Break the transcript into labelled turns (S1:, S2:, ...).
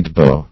S1: Idbar